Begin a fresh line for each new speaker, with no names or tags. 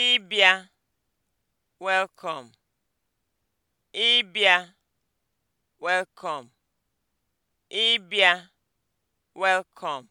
ịbịa welcome ịbịa welcome ịbịa welcome